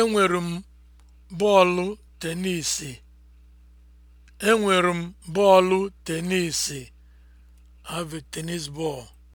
Enwere m bọọlụ tenisi. Enwere m bọọlụ tenisi. have tennis ball.